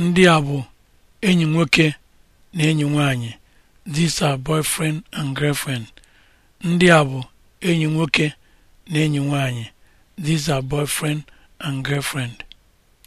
ndị a bụ enyi nwoke na enyi nwanyị these are boyfriend and girlfriend ndị a bụ enyi na enyi nwanyị these are boyfriend and girlfriend